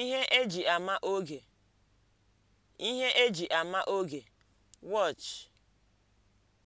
Ihe eji ama oge: Ihe e ama oge: Watch